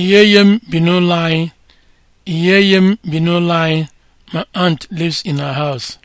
Iyeye m bi n'ụlọ anyị. anyị. My aunt lives in her house.